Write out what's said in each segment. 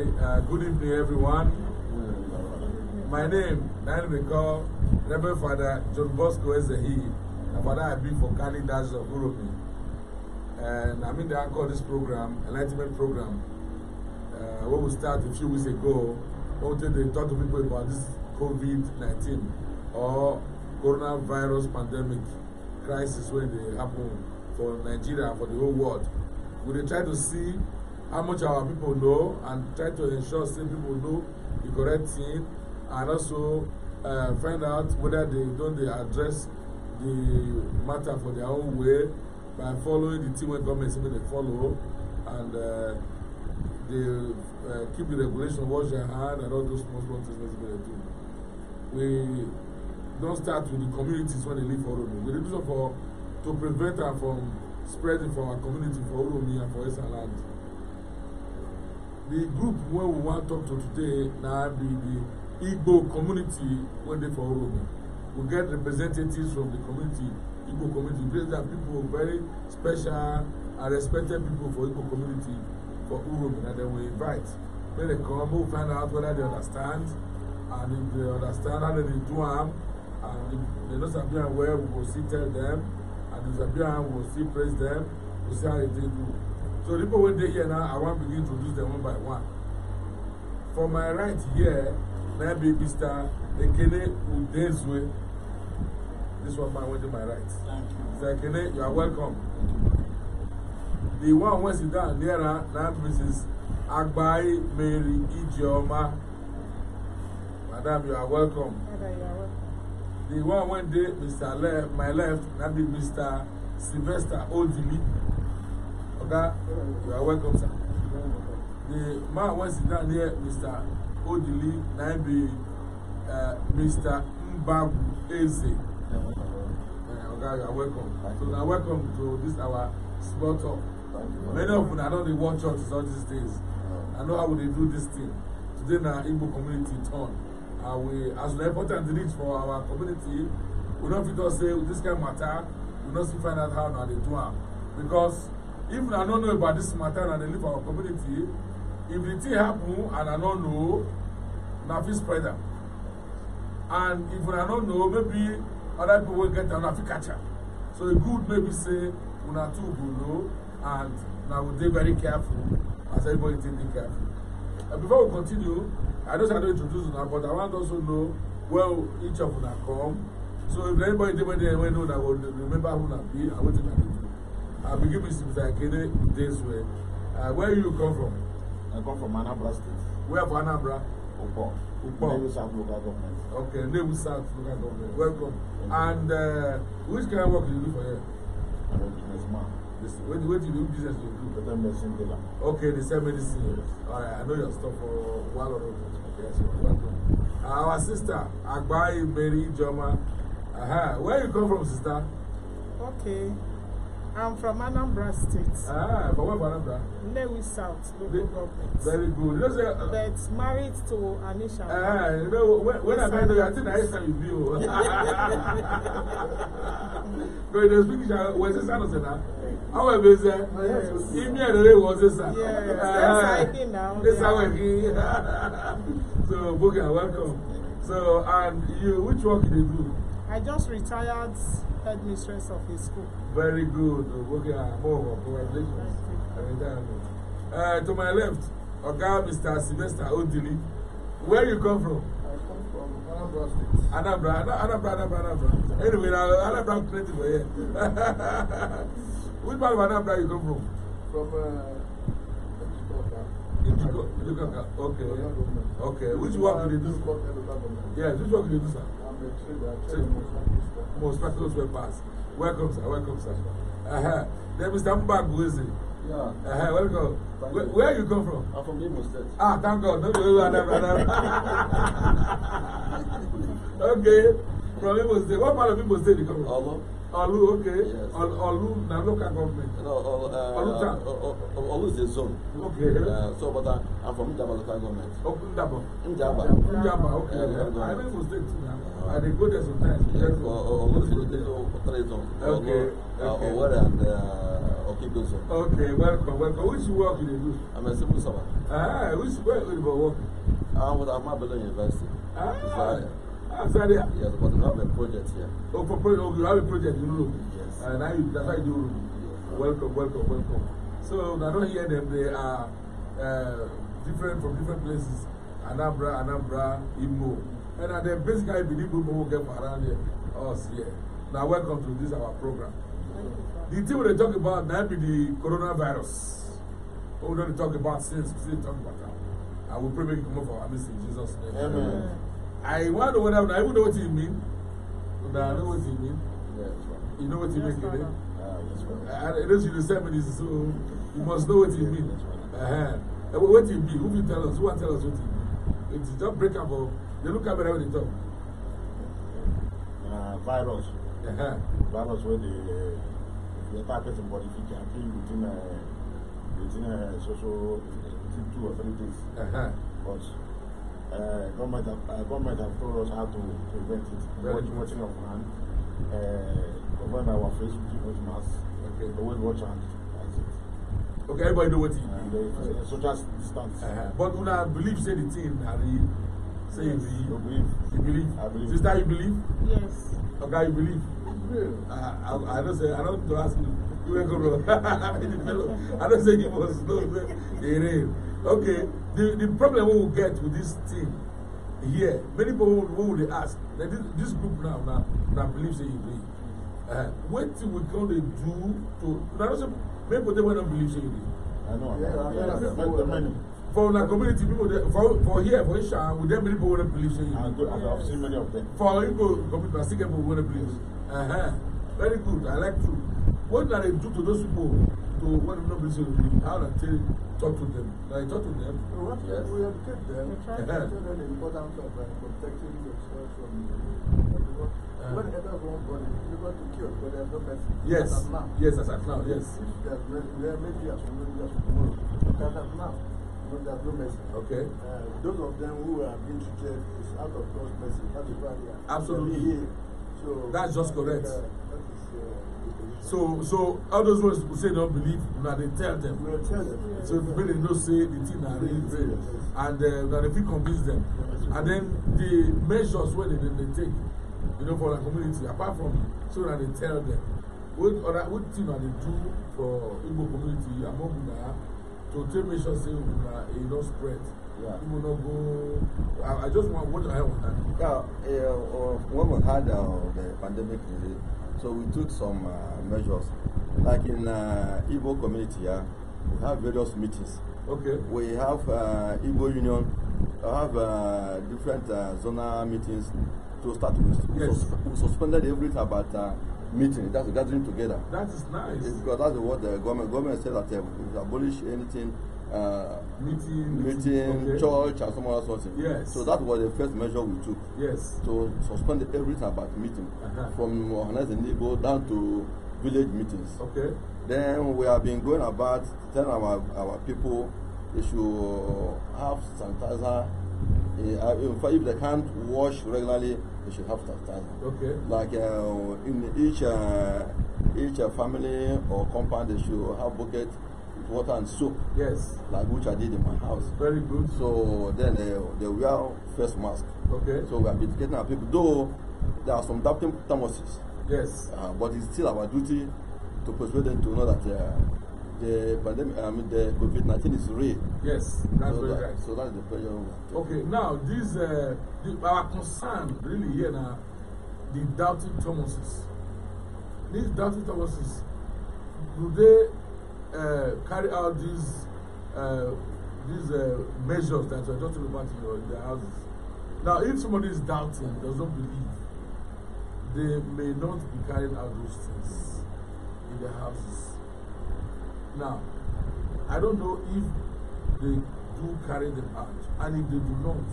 Hi, uh, good evening, everyone. My name, Nainimiko, Reverend Father John Bosco Ezehi, and Father I've been for Kali Dash of Uromi. And I'm in the anchor of this program, Enlightenment Program, uh, where we started a few weeks ago, where we talk to people about this COVID 19 or coronavirus pandemic crisis when they happen for Nigeria, for the whole world. We try to see how much our people know and try to ensure say people know the correct thing and also uh, find out whether they don dey address the matter for their own way by following the thing wey government say make dem follow and uh, dey uh, keep the regulation wash their hand and all those small small things wey dem do we don start with the communities wey dey live for oromi we dey do so for to prevent am from spreading for our community for oromi and for esan land the group wey we wan talk to today na be the igbo community wey dey for oromo we get representatives from the community igbo community place that people very special and respected people for igbo community for oromo na dem we invite make dem come make we find out whether they understand and if they understand how dem dey do am and if they no sabi am well we go still tell dem and if they sabi am we go still praise dem we see how they take do. So the people when they here now, I want to begin to introduce them one by one. For my right here, now be Mr. Ekene Udezwe. This one my went to my right. Thank you. Mr. Ekene, you are welcome. The one who sit down there now, Mrs. Agbai Mary Ijeoma. Madam, you are welcome. Madam, you are welcome. The one went day, Mr. Le my left, that be Mr. Sylvester Odili. Oga, you are welcome, sir. The man was down here, Mr. Odili, Naibi, uh, Mr. Mbabu Eze. Uh, Oga, you are welcome. so now welcome to this our small talk. Many of you, I know they watch churches all these days. I know how they do this thing. Today now, Igbo community turn. Uh, we, as an important reach for our community, we don't fit us say this kind of matter, we don't see find out how now they do it. Because if una no know about this matter and i dey live our community if the thing happen and i no know una fit spread am and if una no know maybe other people wey get am una fit catch am so e good maybe say una too go know and una go dey very careful as everybody take dey careful uh, before we continue i know say i don introduce una but i wan also know well each of una come so if anybody dey wey dey wey know una go remember who una be and wetin una dey do. I begin with Mr. Akede this way. Uh, where you come from? I come from Anambra State. Where from Anambra? Upo. Upo. Nebu South local government. Okay, Nebu South local government. Welcome. and uh, which kind of work you do for here? I'm a businessman. This, what, what do you do business you do? The medicine dealer. Okay, the same medicine. Yes. All right, I know your stuff for a while already. Yes, welcome. our sister, Agbaye Mary Joma. Uh -huh. Where you come from, sister? Okay. I'm from Anambra State. Ah, but where Anambra? Nnewi South, local the, government. Very good. You say, uh, But married to Anisha. Ah, you know, when, when I met her, I think the next time you view. But the speaker was his uh, son, sir. How are you, sir? Yes. He me and the was his son. Yes, ah, that's how I now. That's how I So, Buka, welcome. So, and you, which work do you do? I just retired headmistress of his school. Very good. Okay, Moho, congratulations. Uh, to my left, Oga Mr. Sylvester Odili. Where you come from? I come from Anambra State. Anambra, Anambra, Anambra, Anyway, Anambra plenty for here. Which part of Anambra you come from? From uh, Ejikoka. Ejikoka, okay. Okay, which work do you do? Yes, which work do you do, sir? Most battles were passed. Welcome, sir. Welcome, sir. Uh -huh. Then Mr. Mbag, who is it? Yeah. Uh -huh. Welcome. Where, where you come from? I'm from Imo State. Ah, thank God. No, no, no, no, no. okay. From Imo State. What part of Imo State you come from? Allah. Olu, okay. Yes. Olu, Olu, now local government. No, uh, Olu, uh, uh, Olu uh, is a zone. Okay. Uh, so, but uh, I'm from Ndaba local government. Oh, Ndaba. Ndaba. Ndaba, okay. Uh, I live in state now. Uh, I go there sometimes. Yes, Olu uh, uh, is a three zone. Okay. Okay. Owere and uh, Okibo zone. Okay, welcome, welcome. Which work you do? I'm a civil servant. Ah, which work you work? I'm with Amabelo University. Ah. Sorry. Yes, but we have a project here. Oh, for project, okay, oh, you have a project in Urugu. Yes. And now you, that's why you Urugu. Welcome, welcome, welcome. So, I don't hear them, they are uh, different from different places. Anambra, Anambra, Imo. And uh, the basic I believe people will get around here, us here. Now, welcome to this our program. The thing we're talking about now be the coronavirus. What we don't talk about since, we still talk about that. I will pray make you come up for our missing Jesus' name. Amen. Amen. I wonder what I even know what you mean. But I know what you mean. Yeah, right. You know what you yes, mean, right. Uh, ah, it is in the 70s, so you must know what you mean. That's Uh -huh. What you mean? Who will tell us? Who will tell us what you mean? It's just break up. they look at me when they talk. Uh, virus. Uh -huh. Virus where uh, the uh, attack person body can kill within a, uh, within a uh, social within two or three days. Uh -huh. But Uh, eh, government, have, uh, eh, government have told us how to prevent it. Very watch watching of hand, uh, our face with people's masks. Okay. Always watch hand. Okay, everybody know what he. uh, is. Uh, social distance. Uh-huh. But una believe say the thing, Harry. Say yes. you believe. You believe. I believe. Sister, you believe? Yes. Okay, you believe. Yeah. Uh, I, I don't say. I don't to ask you. You ain't I don't say you was slow. Okay the the problem we will get with this thing here many people will we ask that this this group now now na believe say e dey uh, wetin we come dey do to na no say many people dey wey no believe say e dey. i know yeah, yeah, yeah, yeah, yeah, yeah. for our community people dey for for here for isha we get many people wey believe in you. I've seen many of them. for people community na still people wey believe. Uh -huh. very good i like true What i they do to those people to when you know busy with me, how I tell talk to them. Like talk to them. We want yes. to educate them. We try to uh-huh. tell them the importance of uh, protecting yourself from everyone. Uh, uh-huh. when others want body, you got to kill, but there's no mercy. Yes. As now. Yes, as of now, yes. If there's mercy, we are maybe as well as tomorrow. As of now. No, there's no mercy. Okay. Uh, those of them who are being treated is out of God's mercy. That is why they are. Absolutely. So, That's just correct. Uh, that is, uh, So, so all those ones who say they don't believe, now they tell them. tell them. So when they don't say the thing are really real, and uh, that if you convince them, and then the measures where they, they, they take, you know, for the community, apart from so that they tell them, what other what thing are they do for Igbo community among Una to take measures sure say Una it e don't spread. Yeah. People not go. I, I just want what I want. Yeah, uh, uh, when we had uh, the pandemic. Uh, So we took some uh, measures. Like in uh, Igbo community, yeah, we have various meetings. Okay. We have uh, Igbo Union, we have uh, different uh, zonal meetings to start with. Yes. We, suspended everything about uh, meeting, that's gathering together. That is nice. It's because that's what the government, government said that they abolish anything, uh, meeting, meeting okay. church, and some other sort of Yes. So that was the first measure we took. Yes. To suspend everything about meeting, uh -huh. from organizing neighbor down to village meetings. Okay. Then we have been going about telling our our people they should have sanitizer. Uh, in fact, if they can't wash regularly, they should have sanitizer. Okay. Like uh, in each uh, each uh, family or compound, they should have bucket water and soap. Yes. Like which I did in my house. Very good. So then they, uh, they wear face mask. Okay. So we are educating our people. Though there are some doubting Thomases. Yes. Uh, but it's still our duty to persuade them to know that uh, the pandemic, I mean the COVID-19 is real. Yes, that's so very that, right. So that's the pressure. Okay, now this, uh, the, our concern really here now, the doubting Thomases. These doubting Thomases, do they uh, carry out these uh, these uh, measures that you're just about in your, in houses. Now, if somebody is doubting, does not believe, they may not be carrying out those things in their houses. Now, I don't know if they do carry them out, and if they do not,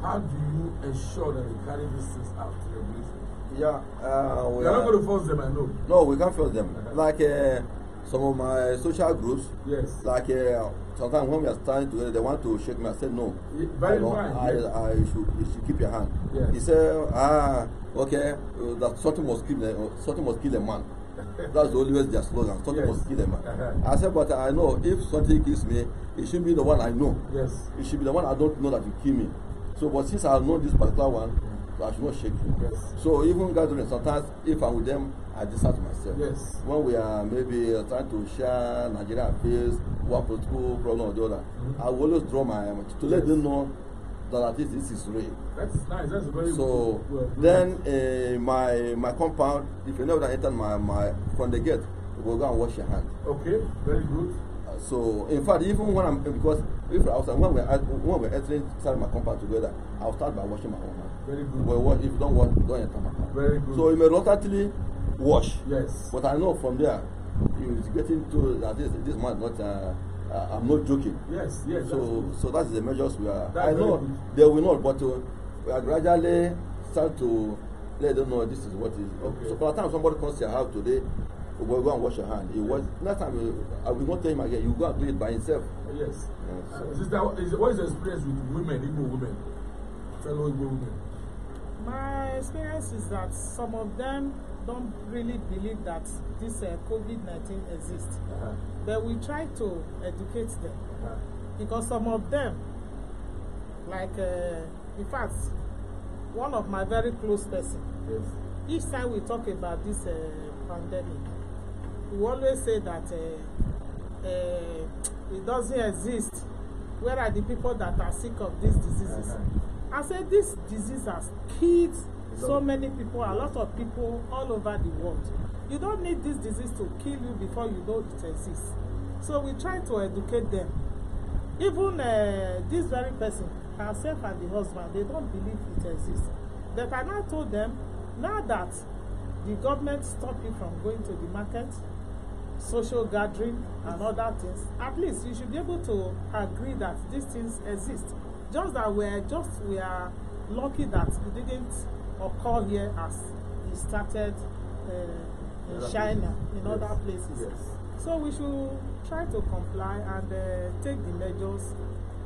how do you ensure that they carry these things out to regulation? Yeah, uh, we are not going to force them, I know. No, we can't force them. like, uh, some of my social groups, yes, like uh, sometimes when we are standing together, they want to shake me. I said, No, very I, don't, fine, I, yes. I, I should, you should keep your hand. Yes. He said, Ah, okay, uh, that something must kill, uh, something must kill a man. That's the always their slogan. Something yes. must kill a man. Uh-huh. I said, But I know if something kills me, it should be the one I know. Yes, it should be the one I don't know that will kill me. So, but since I know this particular one, I not shake Yes. So even gathering, sometimes if I'm with them, I just ask myself. Yes. When we are maybe uh, trying to share Nigeria affairs, one political problem or the other, mm-hmm. I will always draw my um, to yes. let them know that at least this is real. That's nice. That's very. So good. then uh, my my compound, if you never enter my my from the gate, you go go and wash your hand. Okay. Very good. Uh, so in fact, even when I'm because if I was when we when we entering inside my compound together, I'll start by washing my own hands. Very good. But if you don't wash, don't enter matter. Very good. So you may reluctantly wash. Yes. But I know from there, is getting to that this this man not. Uh, uh, I'm not joking. Yes, yes. So, that's so that's the measures we are. That's I know good. they will not, but uh, we are gradually start to let them know this is what is. Okay. So, by the time somebody comes to your house today, we go and wash your hand. It was next time uh, I will not tell him again. You go and do it by himself. Yes. yes. Uh, Sister, what is your experience with women, Igbo women, fellow Igbo women? my experience is that some of them don't really believe that this uh, COVID-19 exists. Uh-huh. But we try to educate them uh-huh. because some of them, like uh, in fact, one of my very close person. Yes. Each time we talk about this uh, pandemic, we always say that uh, uh, it doesn't exist. Where are the people that are sick of these diseases? Uh-huh. I said this disease has killed so many people, a lot of people all over the world. You don't need this disease to kill you before you know it exists. So we try to educate them. Even uh, this very person, herself and the husband, they don't believe it exists. But I now told them, now that the government stopped you from going to the market, social gathering and other things, at least you should be able to agree that these things exist just that we're just we are lucky that it didn't occur here as it started uh, in China, in yes. other places. Yes. So we should try to comply and uh, take the measures,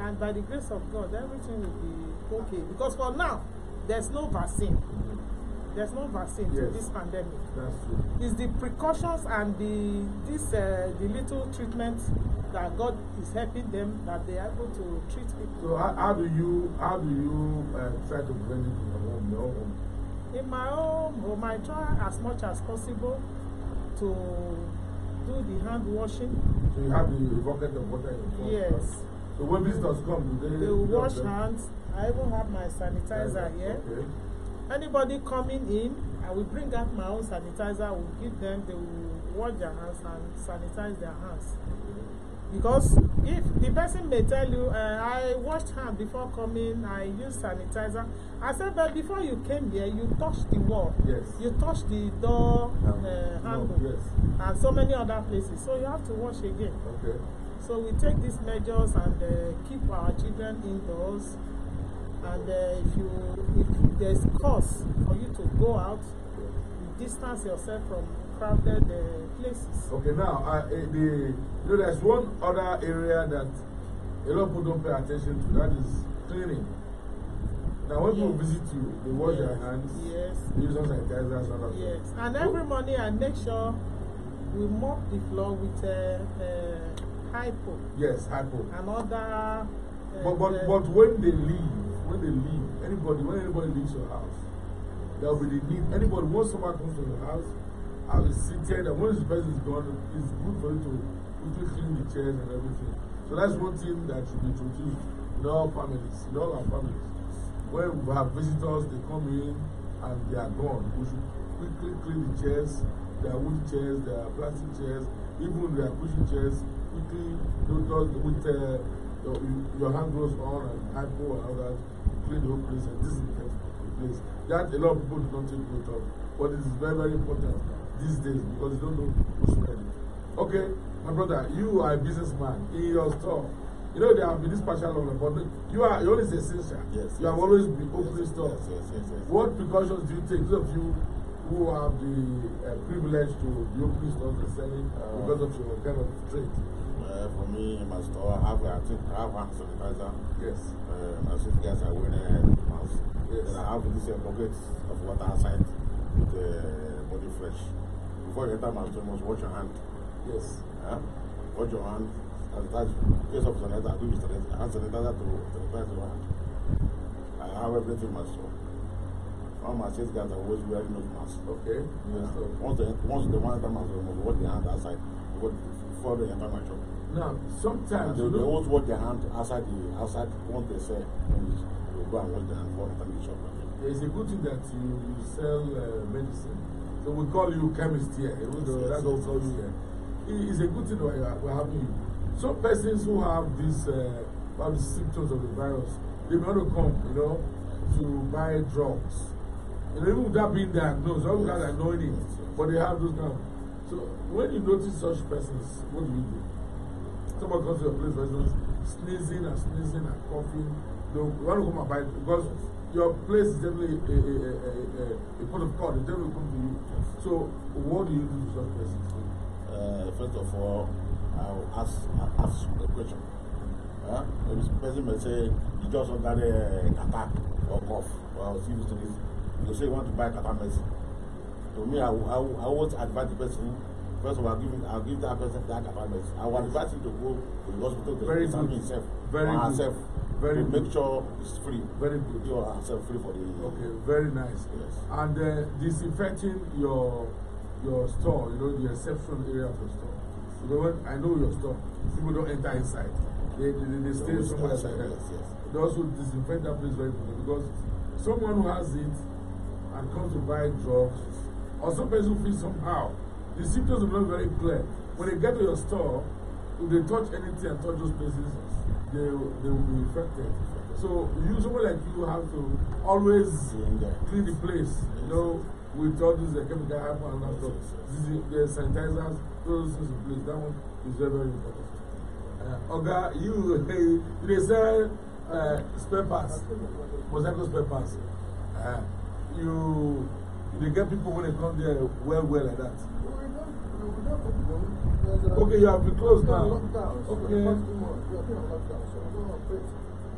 and by the grace of God, everything will be okay. Because for now, there's no vaccine. Mm -hmm. there's no vaccine yes. to this pandemic. That's true. It's the precautions and the this uh, the little treatment that God is helping them that they are able to treat people. So how, how do you how do you uh, try to prevent it in your home? Your home? In my home, home, I try as much as possible to do the hand washing. So you have the bucket of water in your Yes. So when visitors come, do they? They wash hands. I even have my sanitizer okay. here. Okay. Anybody coming in, I will bring out my own sanitizer, I will give them, they will wash their hands and sanitize their hands. Because if the person may tell you, uh, I washed hand before coming, I used sanitizer. I said, but before you came here, you touched the wall. Yes. You touched the door um, uh, handle. No, eh, yes. And so many other places. So you have to wash again. Okay. So we take these measures and uh, keep our children indoors and uh, if you if there's cause for you to go out you distance yourself from crowded uh, places. okay now uh, eh, the you know there's one other area that a lot of people don't pay attention to that is cleaning now when yes. people visit you they wash yes. their hands yes. use some sanitizer and all that yes and every morning i make sure we mop the floor with uh, uh, hypo yes hypo and other uh, but but uh, but when they leave when they leave, anybody, when anybody leaves your house, there will be the need. Anybody, once someone comes to your house, I will sit there, and once the person is gone, it's good for you to quickly clean the chairs and everything. So that's one thing that should be introduced in all families, in all our families. When we have visitors, they come in and they are gone. We should quickly clean the chairs, There are wood chairs, there are plastic chairs, even there are cushion chairs, quickly, you know, with uh, your, your hand gloves on and hypo and all that clean the whole place and disinfect the place. That a lot of people do not take note of, but it is very, very important these days because you don't know who's spreading it. Okay, my brother, you are a businessman in your store. You know there have been this partial lockdown, but you are you always essential. Yes. You yes, have always been opening yes, stores. Yes, yes, yes, yes. What precautions do you take? Those of you who have the uh, privilege to be opening stores and selling uh, because of your kind of trade. Uh, for me, in my store, I have, I think, I have hand sanitizer. Yes. Uh, my suitcase, I wear a mask. Yes. Then I have this uh, bucket of water inside with uh, body fresh. Before you enter my store, you must wash your hand. Yes. Yeah? Wash your hand. And that's in case of sanitizer, I do with sanitizer. Hand sanitizer to sanitize your hand. I have everything in my store. All my sales guys are always wearing nose masks. Okay. Yeah. Yes, once, they, once the one to enter remove, store, you wash their hand outside before they enter my shop. Now, sometimes. They, they always watch their hand outside the outside what they sell. They go and watch their hand for the shop. It's a good thing that you, you sell uh, medicine. So we call you chemist here. Yes, yes, that's what we call you here. It's a good thing that we're having you. Some persons who have these uh, symptoms of the virus, they may to come, you know, to buy drugs. And even without being diagnosed, some guys are knowing it, but they have those now. So when you notice such persons, what do you do? Somebody comes to your place, for sneezing and sneezing and coughing. They want to come and buy it because your place is definitely a, a, a, a, a pot of call. They definitely come to you. So, what do you do to such persons? Uh, first of all, I'll ask, I'll ask a question. Huh? Maybe some person may say, you just got a attack or cough or serious disease. You say you want to buy a medicine. To me, I, I, I would advise the person First of all, I'll give, I'll give that person that apartment. I will advise him to go to the hospital to Very examine good. himself Very good. herself. Very to good. make sure it's free. Very good. You are herself free for the. Okay, very nice. Yes. And uh, disinfecting your your store, you know, the reception area of your store. You know what? I know your store. People don't enter inside. They they, they, they stay no, somewhere outside. Yes, yes. They also disinfect that place very good because someone who has it and comes to buy drugs or some person feels somehow The symptoms are not very clear. When they get to your store, if they touch anything and touch those places, they, they will be infected. So you, someone like you have to always clean the place, you know, with all these uh, chemical hyper and stuff. This is, the sanitizers, those things in place. That one is very, very important. Uh, Oga, okay, you, hey, they sell uh, spare parts, mosaic spare parts. Uh, you, you get people when they come there well, well like that. Okay, you have been closed now. Okay.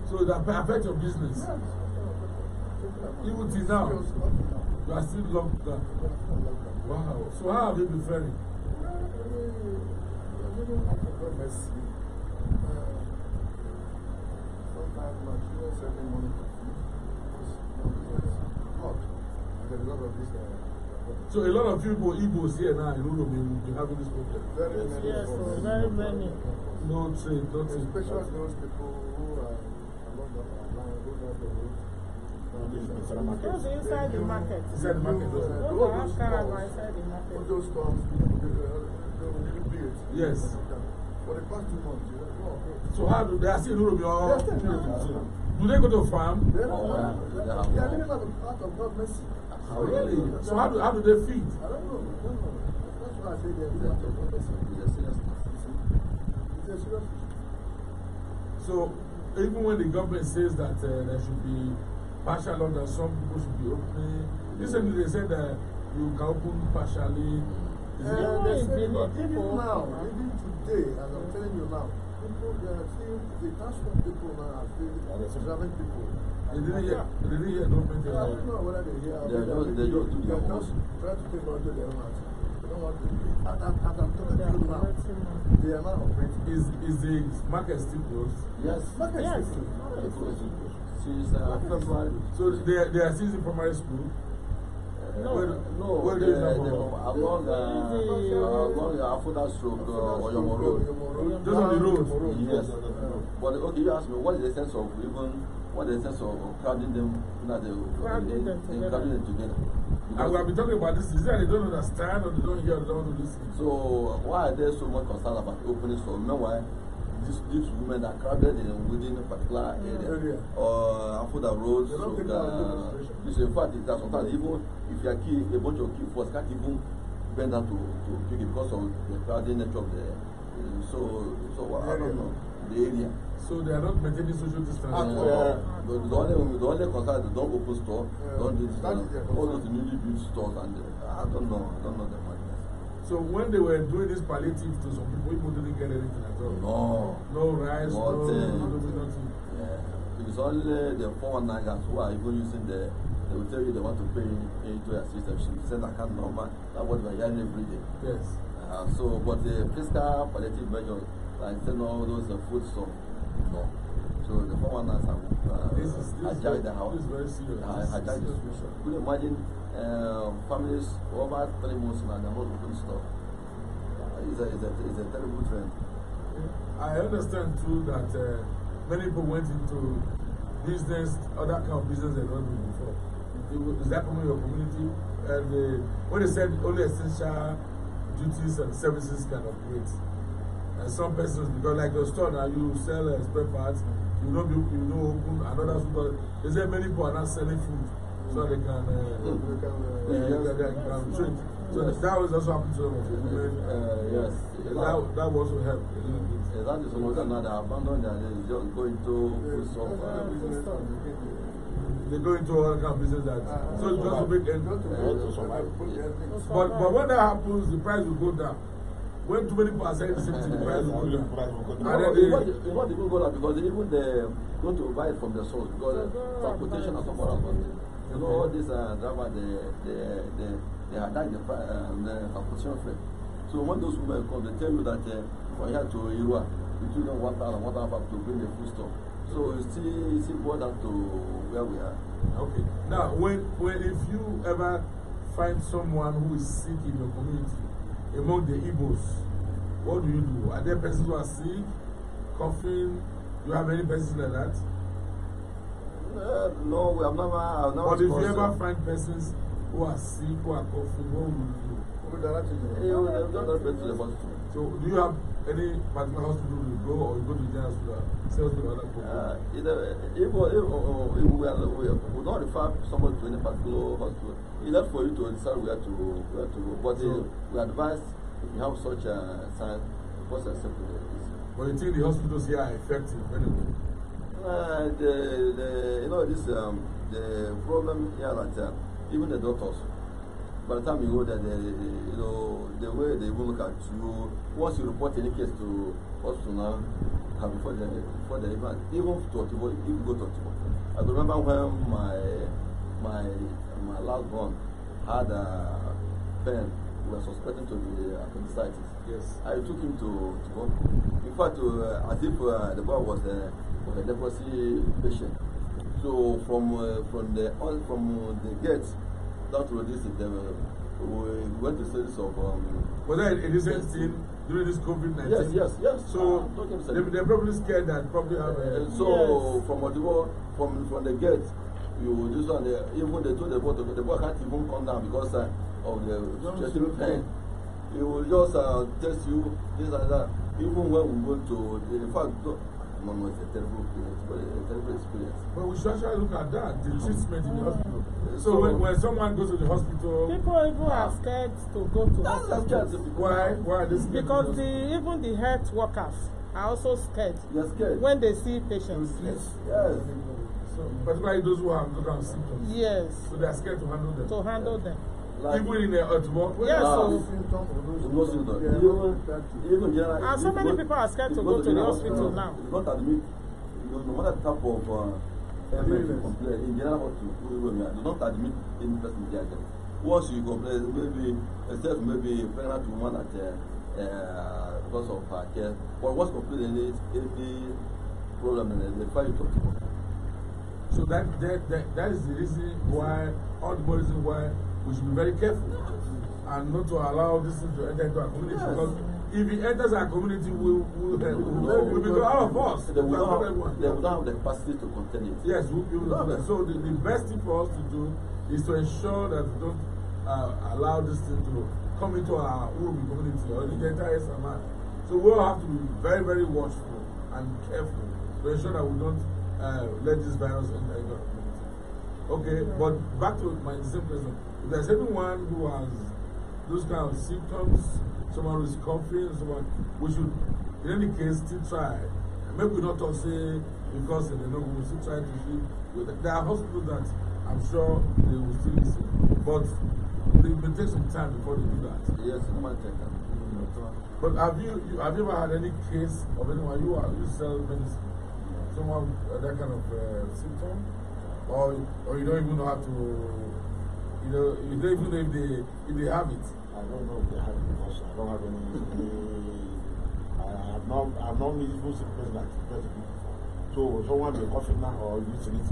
So that affects your business. Even till now, you are still locked down. Wow. So how have you been faring? Sometimes my children send me money. Because my business is hot. There's a lot of this. Uh, So a lot of people, Igbos here now, you know, they having this problem. Very many. Yes, so very many. No, saying, no. saying. Especially those people who are along the line, who know the road. Those inside the market. Inside the market. Those inside the market. All those storms, Yes. For the past two months, oh, So how do they see still in Do they go to farm? They are living out of God's mercy. Oh, really? So how do, how do they feed? I don't know. That's why I say they're It's a So even when the government says that uh, there should be partial lockdown, some people should be opening. Recently they said that you can open partially. Uh, yeah, they say, but even now, even today, as I'm telling you now, people, they are seeing the transport people now are observing people. They did don't make it I don't know whether they hear. They just, they just do their most. Try to take out their mouth. They don't want to, at that time, they are not operating. Is, is the market still closed? Yes. Market yes. still closed. Since uh, So they, they are still in primary school? No, where, no, where uh, the, the, the, uh, uh, along uh, Afuda Stroke, uh, Oyomo Road. Just on the road? Yes. But okay, you ask me, what is the sense of even what is the sense of, oh, of oh, crowding them so that they, crowding they, them Crowding them together? Because and we have been talking about this. Is that they don't understand or they don't hear or they don't listen? So why are they so much concerned about opening store? Meanwhile, these these women are crowded in within a particular yeah. area, area. or uh, Afuda that Soga. Which in fact is that sometimes even if you are key, a bunch of key force can't even bend down to to pick it because of the crowding nature of the. Uh, so so I don't know. the area. So they are not maintaining social distancing. Uh, ah, yeah. the, the, only, the only concern is don't open store, yeah. don't do this. All those newly built stores, and uh, I don't know, I don't know the madness. So when they were doing this palliative to some people, people didn't get anything at all. No. No rice, no, nothing. nothing. Yeah. It's only the foreign nagas who are even using the they will tell you they want to pay, into a system. She said, I can't normal. That's what we are hearing every day. Yes. Uh, so, but the fiscal palliative measures I said no, those are food stuff. No. So the foreigners have uh, this is, this hijacked the house. This is very serious. Uh, hijacked the situation. Could you imagine uh, families over three months now, they're not open stuff. It's a, it's, a, it's a terrible trend. I understand too that uh, many people went into business, other kind of business they don't do before. Is that from your community? And uh, when they said only essential duties and services can operate. uh, some persons because like your store na you sell uh, spare parts you no be you no open another store they say many people are not selling food so they can uh, they can uh, yeah, they can trade so yes. that was also happen to them of the uh, yes that that also help a little bit. exactly so much now they abandon their they just go into food shop. they go into all kind of business that uh, so uh, just to make end to survive. But but when that happens, the price will go down when too many people are selling the same thing, the price will go down. And then they. It won't even go down because even they go to buy it from the source because uh, transportation or some other things. You know, all these uh, drivers, they, they, they, they attack the, uh, the transportation freight. So when those women come, they tell you that uh, from here to Irua, you took them one thousand, one thousand to bring the food stuff. So you still, you still boil down to where we are. Okay. Now, when, when if you ever find someone who is sick in your community, among the Igbos, what do you do? Are there persons who are sick, coughing? Do you have any persons like that? Uh, no, we have never. I've never but if you ever so. find persons who are sick, who are coughing, what will you do? Eh, so, do you have any particular hospital you go or you go to the general hospital? Say Uh, either, eh, if, if, if, if we, are, we, we don't refer somebody to any particular hospital. enough for you to decide where to where to go. But uh, so, we advise if you have such a sign, what's acceptable But you think the hospitals here are effective anyway? Uh, the, the, you know this um, the problem here that uh, even the doctors by the time you go there, they, you know, the way they even look at you, once you report any case to hospital now, uh, before they, before the even, even to Otibo, even go to Otibo. I remember when my, my my last born had a pen we were suspecting to be appendicitis. Yes. I took him to, to go. In fact, uh, as if uh, the boy was a, was a leprosy patient. So from uh, from the on, uh, from the gate that was this, the, we went to series of. Um, was that a recent scene during this COVID nineteen? Yes, yes, yes. So they, they're probably scared that probably. So uh, so yes. from Odibo, from from the gate you this one uh, even they do the work, to the boy can't even come down because uh, of the chest pain It will just uh, test you this and that even when we go to the in fact no no it's a terrible experience but it's a terrible experience. but we should actually look at that the mm-hmm. treatment in the mm. hospital. so, so when, when someone goes to the hospital. people even are scared to go to hospital. why why are they scared. because the even the health workers are also scared. they scared. when they see patients. yes yes. yes mm. particularly those who have those symptoms. Yes. So they are scared to handle them. To handle them. Like, even in the uh, tomorrow. Yes, uh, so. No symptoms. Yeah, even, even generally, and ah, so many people are scared to go to the hospital uh, now. Not admit, you know, no matter type of uh, MS complaint, in general what hospital, do not admit any person diagnosed. Once you complain, uh, maybe, except maybe pregnant woman at uh, uh, because of her care, but once complaining any, any problem, uh, they find you talk to her. So that, that, that, that is the reason why, all the reason why we should be very careful and not to allow this thing to enter into our community. Yes. Because if it enters our community, we will we, we, we, we become our of They will not have, they will have the capacity to contain it. Yes, we, we will not. So the, the best thing for us to do is to ensure that we don't uh, allow this thing to come into our own community or the entire Samar. So we all have to be very, very watchful and careful to ensure that we don't uh, let this virus enter community. Okay, but back to my same question. If there's anyone who has those kind of symptoms, someone who's coughing, someone, we should, in any case, still try. maybe we not to say because they know we will still try to treat. There are hospitals that I'm sure they will still listen, but it will take some time before they do that. Yes, no matter. Mm -hmm. But have you, you have you ever had any case of anyone you are you sell medicine? someone uh, that kind of uh, symptom, or or you don't even know how to, you know, you don't even know if they if they have it. I don't know if they have it because I don't have any. Uh, I have not I have not visible symptoms like that before. So someone be cough it now or use it.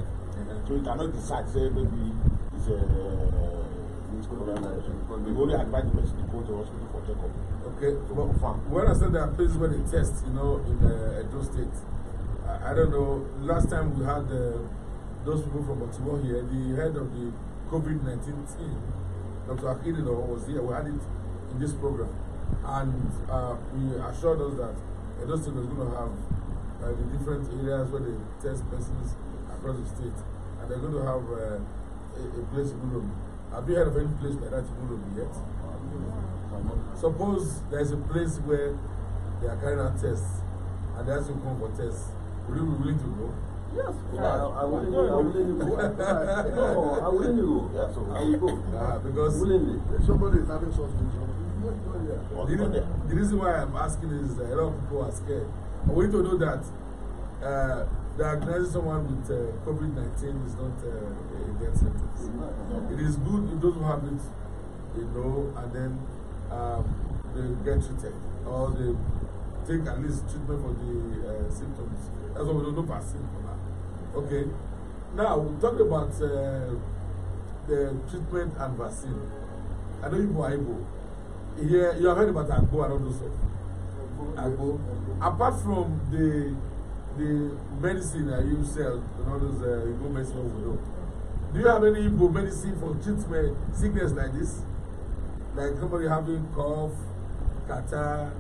So you cannot decide say maybe it's a uh, it's coronavirus. The only advise the person to go to hospital for checkup. Okay, well, when I said there are places where they test, you know, in uh, Edo State. I, I don't know, last time we had uh, those people from Baltimore here, the head of the COVID 19 team, Dr. Akilino, was here. We had it in this program. And uh, we assured us that uh, those Edoston are going to have uh, the different areas where they test persons across the state. And they're going to have uh, a, a place in Ulomi. Have you heard of any place like that in Ulomi yet? Suppose there's a place where they are carrying out tests and they have to come for tests. Would you be willing to go? Yes, yeah, I, I wouldn't go. I wouldn't go. No, I wouldn't go. Yes, I would go. Nah, because willingly. somebody is having something. The, the reason why I'm asking is that a lot of people are scared. I want you to know that uh, diagnosing someone with uh, COVID 19 is not uh, a death sentence. It is good if those who have it, you know, and then um, they get treated or they take at least treatment for the uh, symptoms. That's why we don't know vaccine for that. Okay. Now, we talk about uh, the treatment and vaccine. I know you are able. Here, you have heard about Agbo and all those stuff. Agbo. Apart from the the medicine that you sell and all those uh, Igbo medicine we know, do you have any Igbo medicine for treatment sickness like this? Like somebody having cough, catarrh,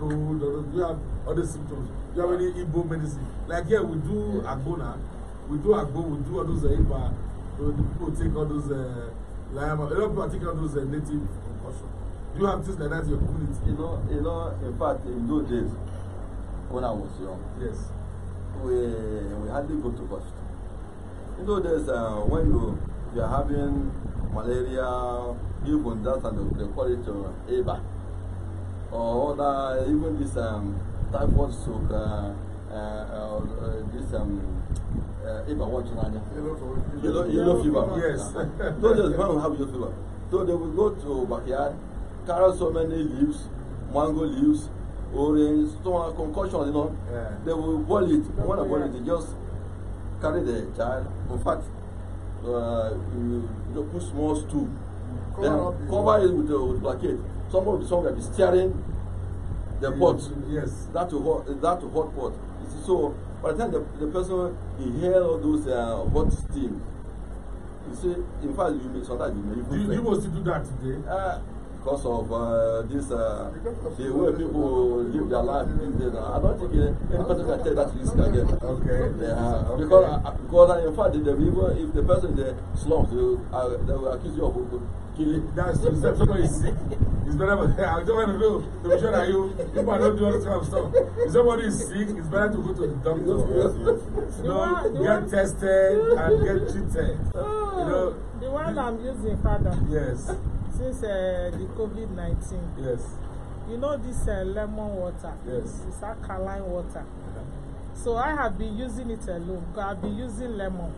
cold, or you have other symptoms? you have any Igbo medicine? Like here, we do Agona, we do Agbo, we do all those eh, Iba, so people take all those uh, eh, Lama, a lot of people take all those uh, native concussion. Do you have things like that in your community? You know, you know, in fact, in those days, when I was young, yes, we, we hardly go to hospital. In those days, uh, when you, you are having malaria, even that, and they call it uh, or oh, other, even this um, typhoid soak, uh, uh, uh, uh, this um, uh, fever, what you know, yellow, yellow fever. Yes. Those days, people have yellow fever. So they will go to backyard, carry so many leaves, mango leaves, orange, some concoctions, you know. Yeah. They will boil it. When they boil it, they just carry the child. In fact, uh, you, know, put small stool. Cover, then, cover it with, uh, with blanket. Someone will be will be steering the pot. Yes. That to hot that to hot pot. so by the time the, the person inhale all those uh, hot steam, you see, in fact, you may sometimes you may even. Do you mostly do that today? Uh, because of uh, this, uh, the way people live their life I don't think uh, any person can take that risk again. Okay. Yeah, okay. Because, uh, because uh, in fact, the if the person in the slums, they, uh, they will accuse you of uh, he, that's himself, somebody is sick. It's better, I don't want to know to be sure that you, if I don't do all this stuff. If somebody is sick, it's better to go to the doctor. you know, get tested and get treated. Oh, you know, the one I'm using, Father. Yes. Since uh, the COVID 19. Yes. You know this uh, lemon water? Yes. It's alkaline water. So I have been using it alone. I've been using lemon.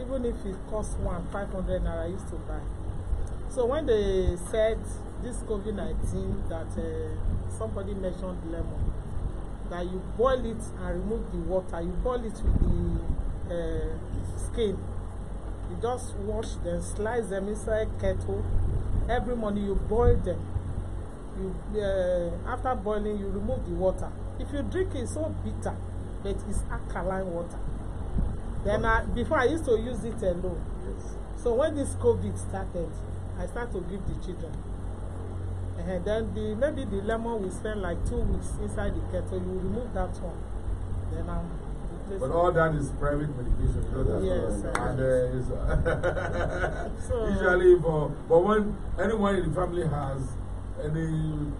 Even if it costs one, five hundred naira, I used to buy. So when they said this COVID-19 that uh, somebody mentioned lemon, that you boil it and remove the water, you boil it with the uh, skin. You just wash them, slice them inside kettle. Every morning you boil them. You uh, after boiling you remove the water. If you drink it, it's so bitter, but it's alkaline water. Then I, before I used to use it alone. Yes. So when this COVID started, I start to give the children. And then the maybe the lemon will spend like two weeks inside the kettle. You remove that one. Then I'm But all that is private medication. You know, yes, right. and uh, is, uh, so, usually for but when anyone in the family has any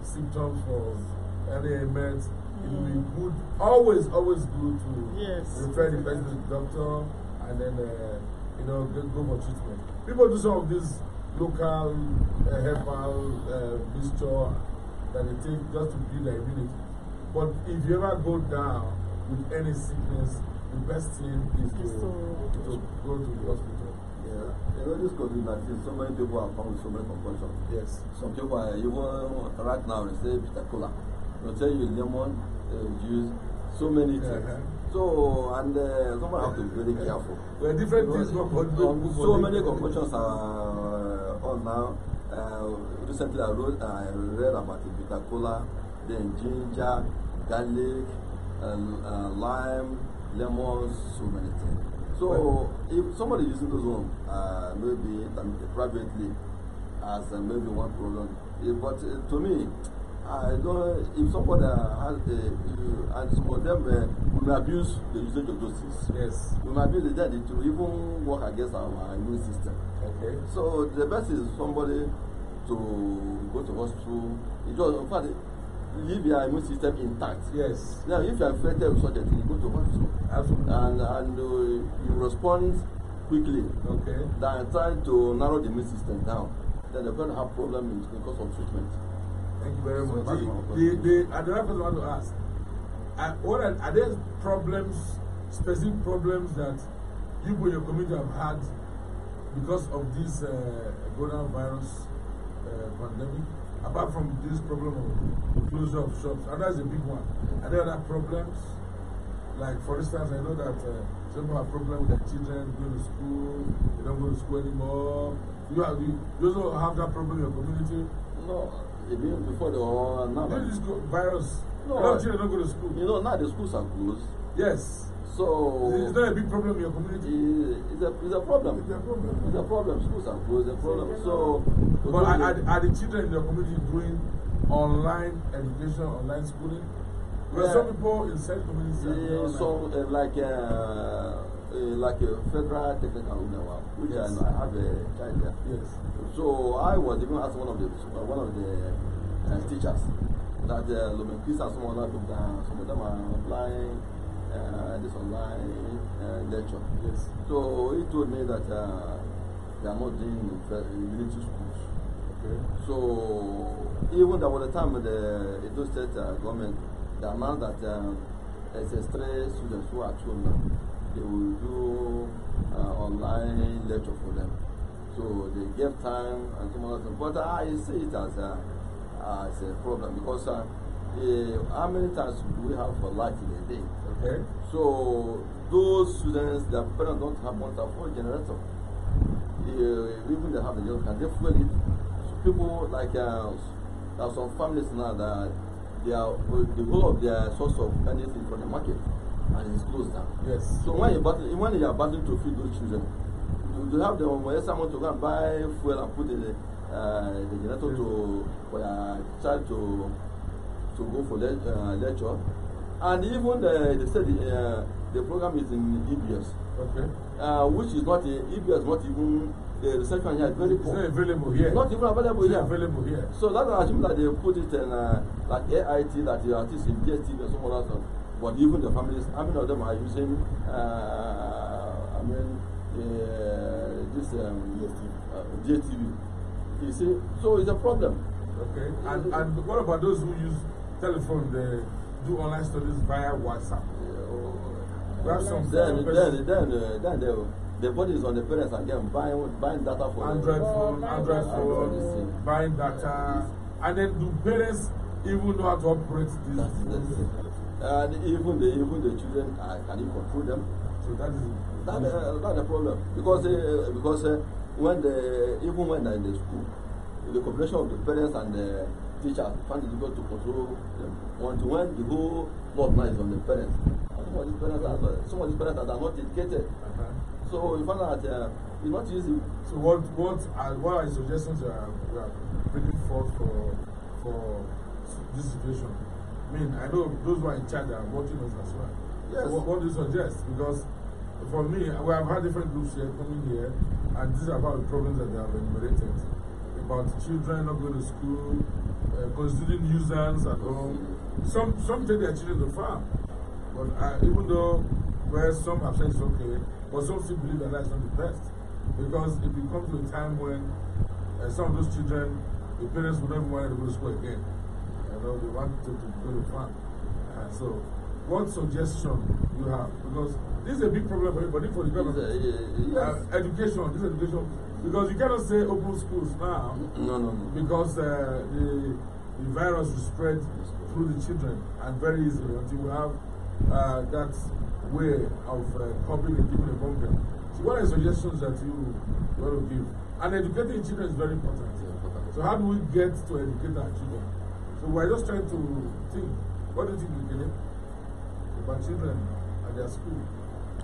symptoms for any ailment, mm. it will be mm. good. Always, always good to yes, refer the person to the doctor and then uh, you know go, go for treatment. People do some of these local uh, herbal uh, mixture that they take just to build their immunity. But if you ever go down with any sickness, the best thing is to, to go to the hospital. Yeah. You know, this COVID 19, so many people are found with so many concussions. Yes. Some people are even uh, right now, they say Peter Cola. They'll tell you lemon, uh, juice, so many uh-huh. things. Uh -huh. So, and uh, someone have to be very careful. Well, different you know, things. So, so many concussions are now. Uh, recently, I wrote, I read about the bitter cola, then ginger, garlic, and, uh, lime, lemon, so many things. So well, if somebody using those one, uh, maybe privately, as uh, maybe one problem, it, eh, but uh, to me, I don't, if somebody has the, you, uh, and some of them uh, will abuse the usage of those things. Yes. Will abuse the dead to even work against our, immune system. Okay. So the best is somebody to go to hospital. It just, in fact, leave your immune system intact. Yes. Now, if you are affected with such a thing, go to hospital. Absolutely. And, and uh, you respond quickly. Okay. Than trying to narrow the immune system down. Then they're going to have problems because of treatment. Thank you very much. the, the, the, another person I want to ask, are, what are, are there problems, specific problems that you and your community have had because of this uh, coronavirus uh, pandemic? Apart from this problem of closure of shops, and that's a big one. Are there other problems? Like, for instance, I know that uh, some people have problems with their children going to school, they don't go to school anymore. You, have, you also have that problem in your community? No, even before the war now. This is go, virus. No, a lot of children don't go to school. You know, now the schools are closed. Yes. So it's not a big problem in your community. Eh, it's a it's a problem. It's a problem. It's a problem. Schools are closed. It's a problem. So, but are, are, are the children in your community doing online education, online schooling? There yeah. are some people in certain communities. Yeah, so uh, eh, like. Uh, Eh, like a federal technical union, which yes. I, I, have a child there. Yes. So I was even asked one of the one of the eh, teachers that the Lomenkis and some other people, some of them are applying uh, eh, this online uh, lecture. Yes. So he told me that uh, they are not doing military schools. Okay. So even there was the time the Edo State uh, government, the amount that um, SS3 students who are thrown they will do uh, online lecture for them. So they give time and some other things. But I ah, see it as a, uh, as a problem because uh, how many times do we have for light in a day? Okay. So those students, their parents don't have one to afford generator. Uh, even they have the generator, can they fuel it? So people like uh, there are some families now that they are, the whole of their source of energy is from the market. and it's closed down. Yes. So when you battle, when you are battling to feed those children, you, you have the money. someone to go and buy fuel and put the uh, the generator yes. to for your child to to go for le uh, lecture, and even the they said the, uh, the program is in EBS. Okay. Uh, which is not a, uh, EBS not even the reception here is very poor. It's not available here. It's not even available it's here. available here. So that's assume that they put it in uh, like AIT that you are teaching DSTV and some other stuff. But even the families, how many of them are using, uh, I mean, uh, this um, Uh, GSTV. You see, so it's a problem. Okay, and, and what about those who use telephone, they do online studies via WhatsApp? Yeah, or, oh, some then, then, then, uh, then they will the body is on the parents again buying buying data for android phone android phone buying data and then do parents even know how to operate this. That's, that's And even the even the children, uh, can you control them? So that is that uh, that's a problem because uh, because uh, when the even when they're in the school, the cooperation of the parents and the teachers find it difficult to control them. Until when the whole fault lies on the parents. And some of these parents are uh, some of these parents are not educated. Uh-huh. So you find that uh, it's not easy. So what what are what are the suggestions you are, you are bringing forth for for this situation? I mean, I know those who are in charge are watching us as well. Yes. What, what do you suggest? Because for me, we have had different groups here coming here, and this is about the problems that they have enumerated about children not going to school, uh, constituting nuisance at home. Some some take their children to farm, but uh, even though where some have said it's okay, but some still believe that that's not the best because if it to a time when uh, some of those children, the parents would never want to go to school again they want to, to go to farm. Uh, so, what suggestion you have? Because this is a big problem for everybody, for the government. yes. uh, education, this education. Because you cannot say open schools now. No, no, no. Because uh, the, the virus will spread through the children and very easily until we have uh, that way of uh, coping and giving among them. So what are suggestions that you want to give? And educating children is very important. So how do we get to educate our children? So we're just trying to think. What do you think, Gilip? About children at their school.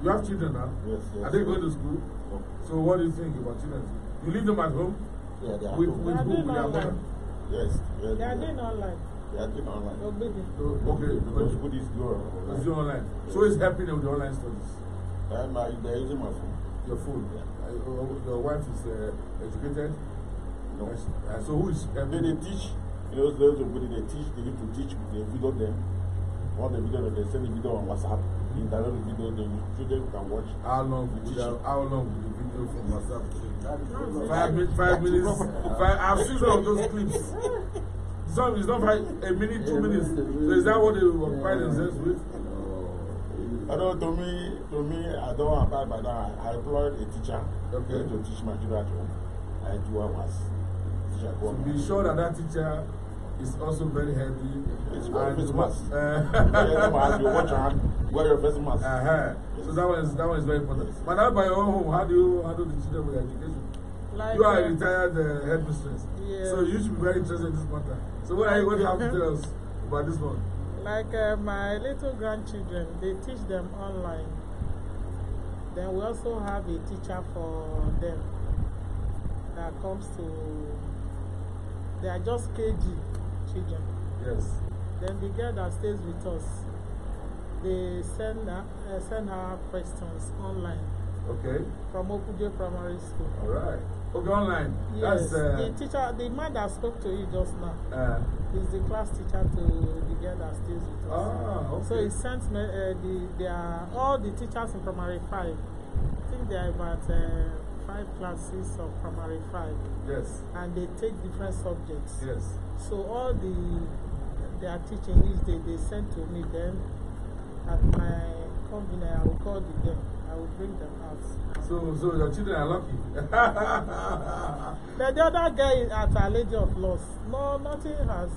You have children now? Yes, yes. Are they going to school? No. So what do you think about children? You leave them at home? Yeah, they are with, home. With they are Doing online. Yes, They are doing online. They are doing online. Obedi. So, okay, because Buddhist do online. It's online. So it's helping them with the online studies. Um, uh, they're using my phone. Your phone? Yeah. Uh, your wife is uh, educated? No. Uh, so who is helping? they teach You know, those people they teach, they need to teach, they video them. All the video that they send the video on WhatsApp, they download the video, the students can watch. How long will the, how long the video from WhatsApp take? Five minutes, five minutes. Five, I've seen some of those clips. Some is not five. a minute, two minutes. So is that what they will occupy themselves with? I oh. don't. to me, to me, I don't abide by that. I employed a teacher okay. to teach my children at home. I do what was. to be sure that that teacher is also very heavy. It's very face mask. watch your hand. Wear your face mask. Uh -huh. So that one is that one is very important. But now by your own home, how do you handle the children with education? Like, you are a uh, retired uh, headmistress, so you should be very interested in this matter. So what are you going to have to tell us about this one? Like uh, my little grandchildren, they teach them online. Then we also have a teacher for them that comes to They are just KG children. Yes. Then the girl that stays with us, they send her, uh, send her questions online. Okay. From Okuje Primary School. All right. Okay, online. Yes. That's, uh, the teacher, the man that spoke to you just now, uh, is the class teacher to the girl that stays with us. Ah, okay. So he sent me, uh, the, they are, all the teachers in primary five. I think they are about. Uh, five classes of primary five. Yes. And they take different subjects. Yes. So all the their teaching is they, they send to me then at my convenience I will call them. I will bring them out. So so your children are lucky. But the other guy is at a lady of loss. No nothing has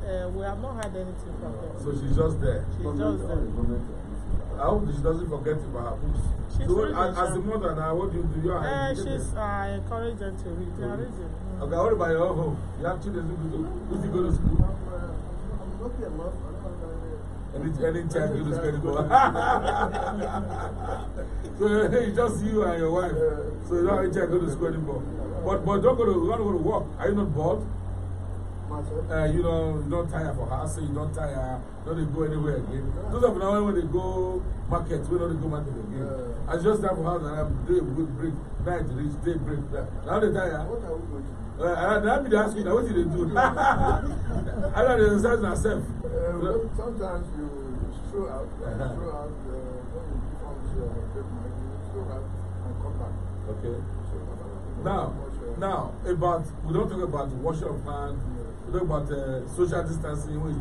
uh, we have not had anything from uh, them. So she's just there. She's Comment just there. I hope she doesn't forget about her books. She's so, as, as a mother now, what do you do? You are uh, she's uh, encouraged them to read. They are reading. Okay, what about your home? You have children who go to, school. who's go to school? I'm okay, uh, mom. Any, any child go to school. so it's just you and your wife. So you don't have any child go to school anymore. But, but don't go to, don't go to work. Are you not bored? uh, you know, you don't tire for house, so you don't tire, you don't go anywhere again. Yeah. Those of now when they go market, we don't go market again. Yeah. Uh. I just have for house and I do good break, night reach, day break. Now they tire. What are we going to do? Uh, that be the asking, what did they do? I don't understand myself. Uh, well, sometimes you show out, uh -huh. throw out, uh, when you perform out and come back. Okay. Uh, now, now about we don't talk about the washing of hands. you know about uh, social distancing, which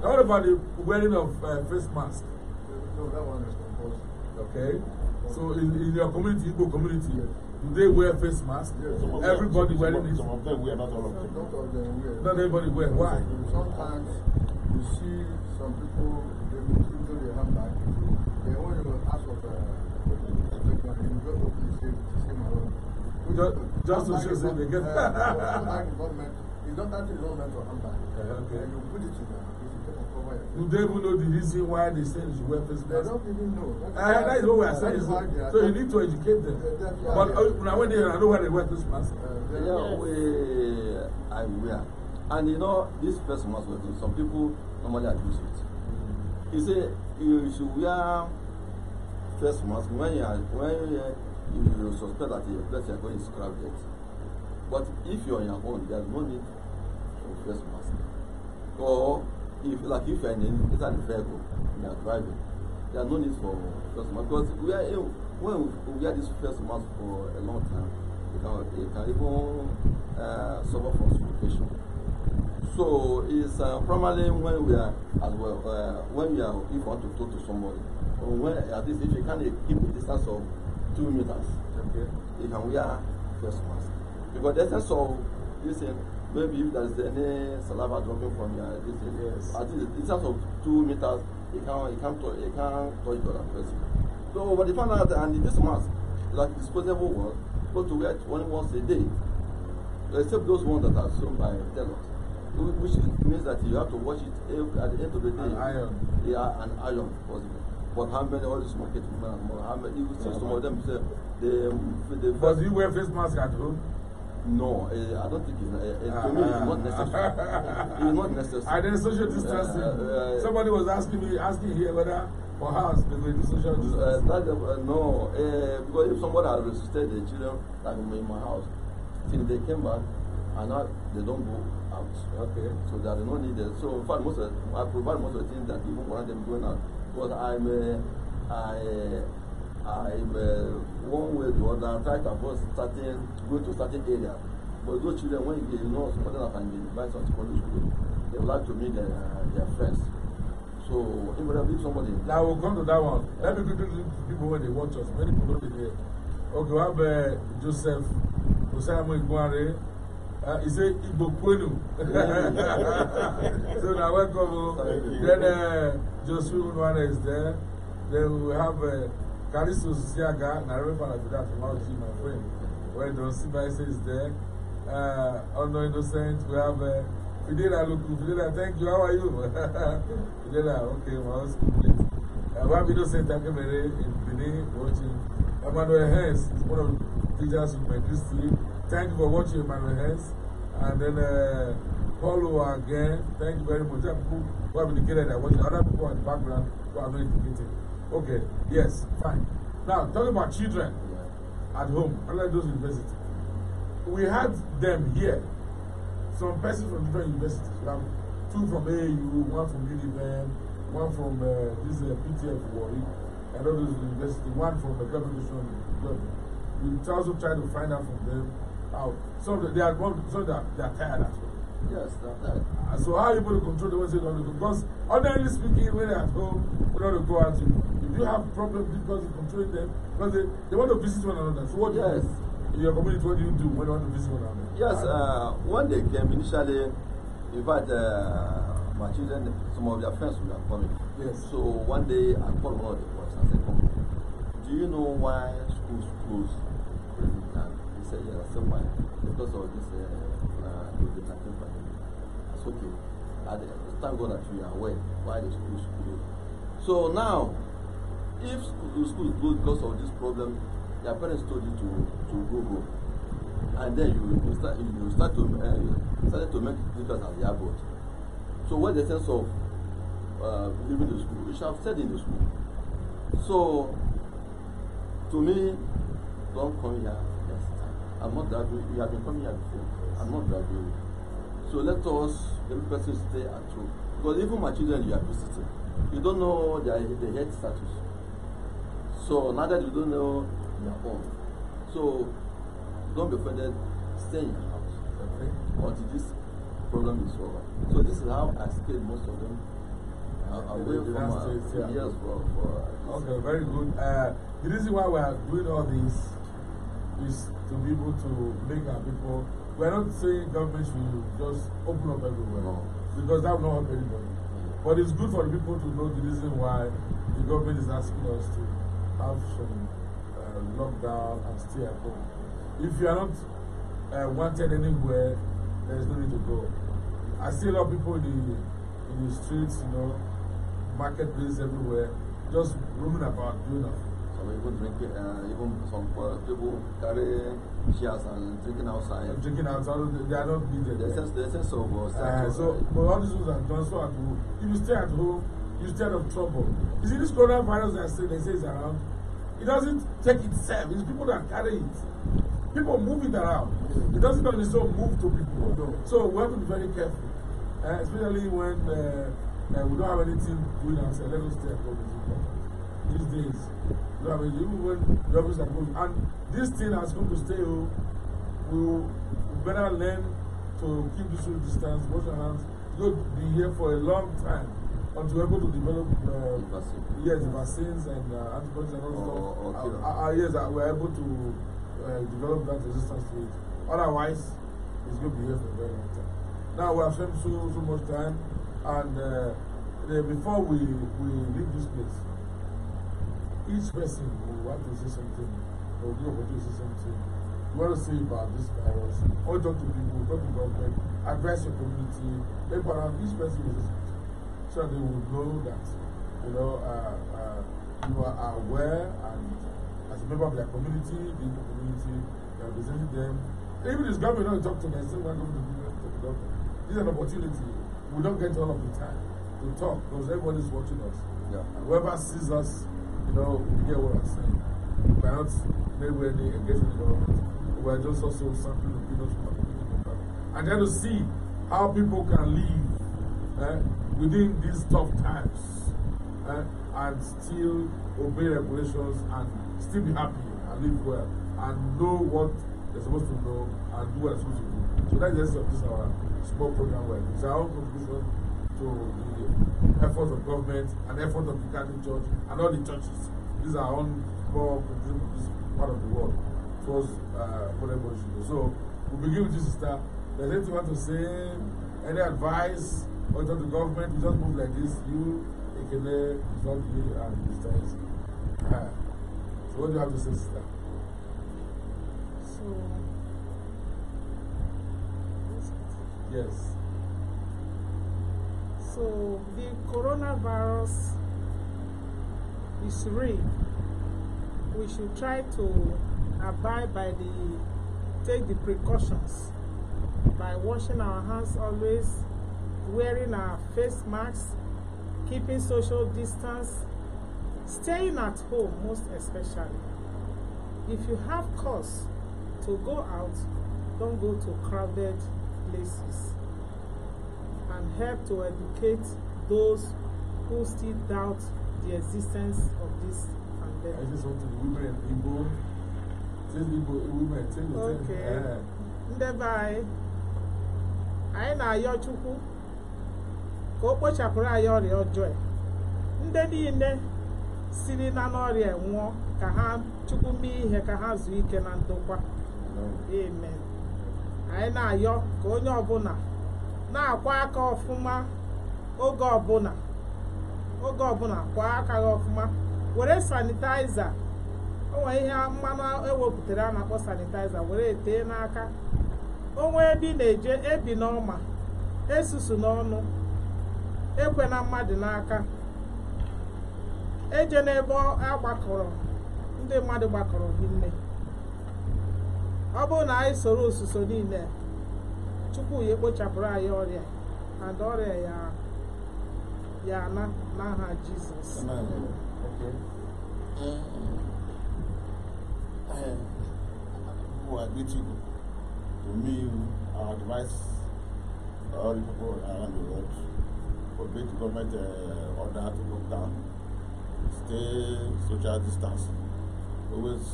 Now, what about the wearing of uh, face mask? No, that one is Okay. So in, in your community, Igbo community, do they wear face mask? Yes. Some Everybody them, wearing some, it. Some of them wear, not all of them. Not all them wear. Not everybody wear. Why? Sometimes you see some people they will their handbag. They want to ask of uh, a just, just to show they get. Uh, just start in one mentor and back. Uh, okay. And you put it in Do they even know the reason why they say you should wear face mask? don't even know. That's, uh, ah, that is what we are saying. So, are so you need to educate them. Yeah, yeah, yeah, but yeah. Uh, now when they I know where they wear this mask. Uh, yeah, yes. we I wear. And you know this person must wear some people normally abuse it. Mm. He say you should wear face mask when you are when you, you suspect that your place you are going is it. But if you are on your own, there is no need trespassing. Or if like if you're in, inside the vehicle you're driving, are no need for first mask because we are eh, when we wear this first mask for a long time, it can, it can even uh, suffer from suffocation. So it's uh, primarily when we are as well uh, when we are if we want to talk to somebody or when at least if you can keep a distance of two meters, okay. you can wear first mask because that's essence so you thing maybe if there's any saliva dropping from your this thing, yes. at least in terms of two meters, It can't it can't it can't touch the other person. So but they found out and this mask, like disposable one, go to wear it only once a day. Except those ones that are sewn by tailors. Which means that you have to wash it every, at the end of the day. An iron. Yeah, an iron possible. But how many all this market women and more? How many you see yeah, some man. of them say the they Because you wear face mask at home? No, uh, I don't think it's, uh, uh, to me it's not necessary. Ah, ah, ah. it's not necessary. And then social distancing. Uh, uh, uh, somebody was asking me, asking here whether for house they go do social distancing. That, no, because if somebody has resisted the children, like in my house, till they came back, and now they don't go out. Okay. So there is no need. There. So in fact, most of, I provide most of the things that people want them going out. Because I'm, I. I'm uh, one way to other. I try to avoid certain, go to certain area. But those children, when they know something that can be advised on secondary school, they would like to meet their, their friends. So, if we invariably, somebody. Now we'll come to that one. Let me quickly people when they watch us. Many people will here. Okay, we have uh, Joseph Osama Iguare. Uh, he say Igbo Kwenu. so now welcome. Oh. Then uh, Joseph Unwana is there. Then we have. Uh, Kalisu Siaga, Nairobi fan of that from my friend. Well done, Sibaise is there. Uh, Honor Innocent, we have uh, Fidela Luku. Fidela, thank you, how are you? Fidela, okay, my house complete. Uh, we have Innocent Akemere in Benin watching. Emmanuel Hens, is one of the teachers with my Christy. Thank you for watching, Emmanuel Hens. And then uh, Paulo again, thank you very much. People who have indicated that watching, other people in the background who have not indicated. Okay, yes, fine. Now, talking about children at home, unlike those universities, we had them here. Some persons from different universities. We have two from A U, one from Univen, one from uh, this uh, PTF Warwick, and others university, one from the government. We also try to find out from them how some they are some they they are tired as well. Yes, that, that. So how are you going to control the way you don't go? Because ordinarily speaking, when they're at home, we don't go out. If you have problems because you control them, because they, they want to visit one another. So what yes. do you In your community, what do you do when you want to visit one another? Yes, uh, when they came initially, in fact, uh, my children, some of their friends were coming. Yes. So one day I called one of the boys and said, Come, do you know why schools close? He said, Yes. I said, Why? Because of this. Uh, okay i thank god that you are well why the school is closed so now if the school is closed because of this problem your parents told you to to go home and then you you start you start to uh, you started to make difference at the airport so what the sense of uh, leaving the school you should have stayed in the school so to me don't come here next time i'm not driving you have been coming here before i'm not driving you. So let us, every person stay at home. Because even my children you are visiting, you don't know their, their health status. So now that you don't know their own. So don't be offended, stay in your house okay? until this problem is over. So this is how I stay most of them away from our years for, for uh, Okay, very good. Uh, the reason why we are doing all this is to be able to make our people We're not saying government should just open up everywhere no. because that will not help anybody. But it's good for the people to know the reason why the government is asking us to have some uh, lockdown and stay at home. If you are not uh, wanted anywhere, there's no need to go. I see a lot of people in the, in the streets, you know, marketplace everywhere, just roaming about doing nothing. So we would drink uh, even some people carry chairs and drinking outside. drinking outside, they are not being there. The sense, So, uh, but all these things are done If you stay at home, you stay of trouble. You see, this coronavirus that say, they say is around, it doesn't take itself. It's people that carry it. People move it around. It doesn't only so move to people. No. So we have to be very careful, uh, especially when uh, uh, we don't have anything doing ourselves. Let us stay at home. These days, You have a you when jobs are moving, And this thing has come to stay. Oh, we we'll better learn to keep the social distance, wash our hands. It's going to be here for a long time until we're able to develop uh, vaccine. yes, vaccines and uh, antibodies and all oh, stuff. Okay. Uh, uh, yes, uh, we're able to uh, develop that resistance to it. Otherwise, it's going to be here for a very long time. Now we have spent so so much time, and uh, the, before we we leave this place. each person will want to say something, or will be opportunity to say something. You want to say about this virus, or talk to people, talk to government, Address your community, but each person will say So they will know that, you know, uh, uh, you are aware and as a member of their community, being the community, you are representing them. Even this government don't talk to them, still want going to talk to them. This is an opportunity. We don't get all of the time to talk because everybody's watching us. Yeah. Whoever sees us You know, you get what I'm saying. Perhaps maybe any engagement in government, we're just also sampling opinions from other people. And then to see how people can live eh, within these tough times eh, and still obey regulations and still be happy and live well and know what they're supposed to know and do what they're supposed to do. So that's the essence of this our small program. Well, it's our contribution to the Efforts of government, and efforts of the Catholic Church, and all the churches. These are on more part of the world towards uh, So we begin with you, sister. Does anything you want to say? Any advice? Or to the government, we just move like this. You, Ekele, Zogbi, and Mr. Uh, so what do you have to say, sister? So. Yes. So the coronavirus is real. We should try to abide by the, take the precautions by washing our hands always, wearing our face masks, keeping social distance, staying at home most especially. If you have cause to go out, don't go to crowded places. and help to educate those who still doubt the existence of this pandemic. I just want to women Okay. Eh. anyị anyị na-ayọ Chukwu ka o kpochapụrụ anyị ọrịa ọjọọ e. ndị niile siri na n'ọrịa e nwụọ ka ha Chukwu mee ihe ka ha zuo ike na ndokwa amen anyị na-ayọ ka onye ọbụla na-akwa aka ọfụma oge ọbụla oge ọbụla kwa aka ọfụma were sanitaiza onwe ihe mmanụ ewepụtara a na-akpọ sanitaiza were tee n'aka onwe ebe ị na-eje ebi n'ọma esusu n'ọnụ ekwe na mmadụ n'aka eje n'ebe gbakọrọ ndị mmadụ gbakọrọ gị nne ọ bụrụ na anyị soro osuso niile tupu ya ekpochapụrụ anyị ọrịa and ọrịa ya ya na n'aha Jizọs eh, eh, are beautiful to me our advice all people around the world for the government uh, order to look down stay social distance always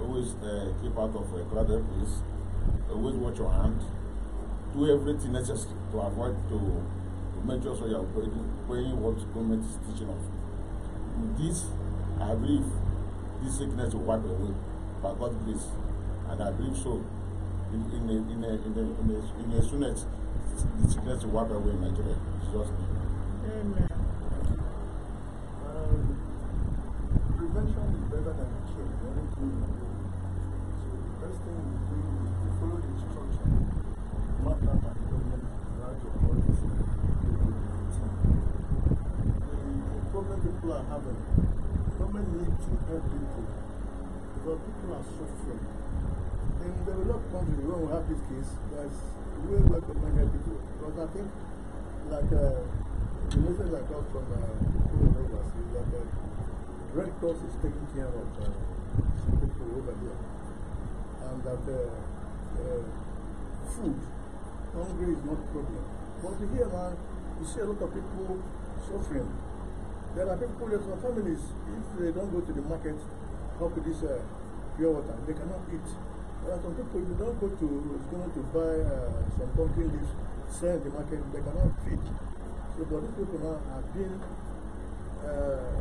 always uh, keep out of a crowded place always watch your hand do everything necessary to avoid to, to make sure so you are obeying, obeying what government is teaching us. With this, I believe this sickness will wipe away by God's grace, and I believe so. In, in, a, in, a, in, a, in, a, in a soonest, the sickness will wipe away in Nigeria. In Jesus' Amen. is that's doing work with people. Because I think, like, uh, the message I got from uh, Nova is that the uh, Red Cross is taking care of uh, people over here. And that uh, uh, food, hunger is not a problem. But here, man, you see a lot of people suffering. There are people, who are families, if they don't go to the market, how could this uh, pure water? They cannot eat. There some people, you don't go to store to buy uh, some pumpkin leaves, sell the market, they cannot feed. So, but these people now have been, uh,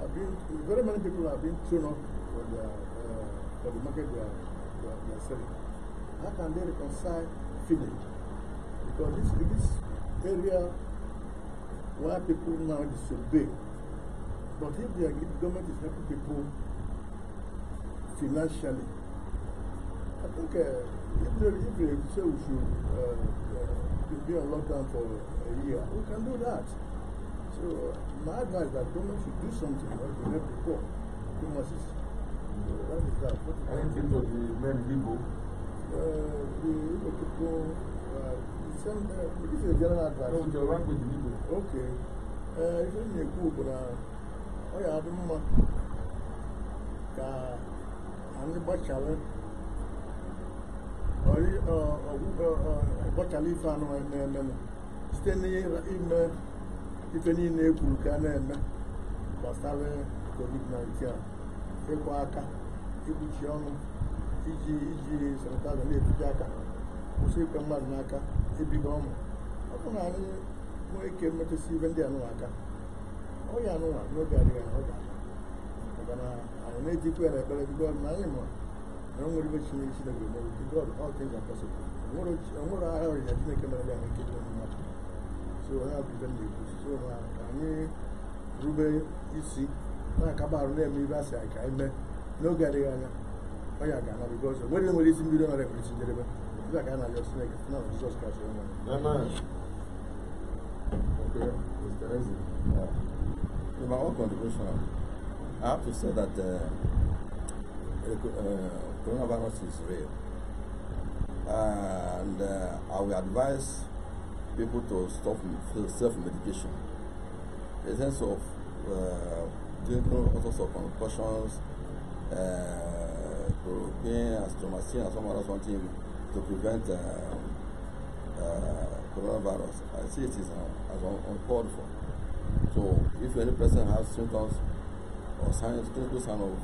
have been, very many people have been thrown off for, their, uh, for the market they are, they, are, they are selling. How can they reconcile feeding? Because this, this area where people now disobey, but if the government is helping people financially, I think uh, if, they, if they say we should uh, uh, be on lockdown for a year, we can do that. So uh, my advice that government should do something like they help the poor. Too much is. So that is that. What is Anything to the men Igbo? Uh, the Igbo people, uh, the uh, this is a general advice. No, the with the Igbo. Okay. Uh, if you're in a group, uh, oh yeah, I don't know. Uh, I'm the bachelor. ọgbọchara eh, eh, eh, ife site n'ime ife niile e ka a na-eme gbasara covid-19 ịkwa aka ikpuchi ọnụ iji iji sanịtaịza aga aka ikwe mmadụ ọ bụ na ndị aka ọ ya anụwa n'oge adịghị ahụ maka na anyị na-ejikwa ya na ekpere bido around what even she should have been able to God, all things are possible. And what I already had to make a man and get them much. So I have given you. So I mean, Ruben, you see, like about them, you guys like I met no Gadiana. Oh, yeah, Ghana, because when you listen, you don't have to deliver. It's like Ghana, you're snake, it's not Jesus Christ. Amen. Okay, it's crazy. Yeah. In my own contribution, I have to say that. Uh, Uh, coronavirus is real. And uh, I will advise people to stop self-medication. In sense of uh, doing all sorts of concussions, chloroquine, uh, astromycin, and some other something to prevent uh, uh, coronavirus. I see it is uh, as uncalled for. So if any person has symptoms or signs, clinical sign of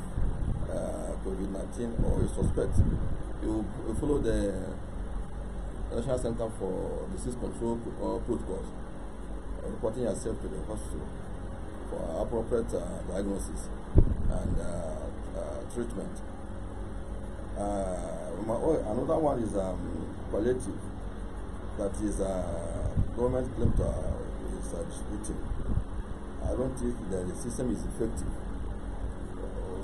uh, COVID-19 or a suspect, you, you follow the National Center for Disease Control uh, protocols, uh, reporting yourself to the hospital for appropriate uh, diagnosis and uh, uh, treatment. My, another one is um, palliative, that is government claim to is distributing. I don't think that the system is effective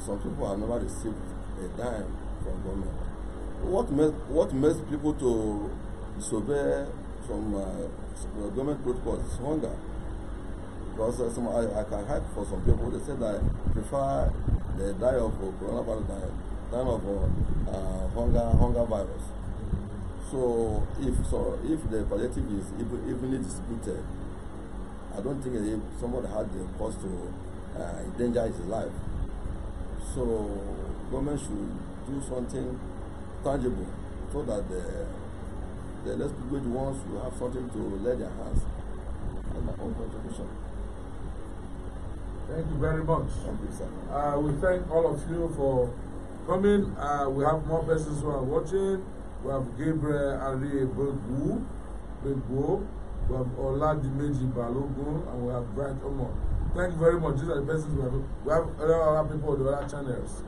some people have never received a dime from government. What makes what makes people to disobey from uh, government protocols is hunger. Because uh, some, I, I can help for some people. They say that prefer they die of uh, coronavirus than, than of uh, uh, hunger hunger virus. So if so if the palliative is evenly distributed, I don't think somebody had the cause to uh, endanger his life. So government should do something tangible so that the the less privileged ones will have something to lay their hands on their own contribution. Thank you very much. Thank you, sir. Uh, we thank all of you for coming. Uh, we have more persons who are watching. We have Gabriel Ari Begwu, Begwu. We have Oladimeji Balogun, and we have Bright Omar. Thank you very much. These are the best things we have. We have other people on the other channels.